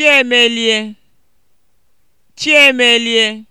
Chiemelie lie